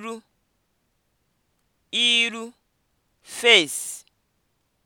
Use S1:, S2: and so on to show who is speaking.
S1: iru iru (face)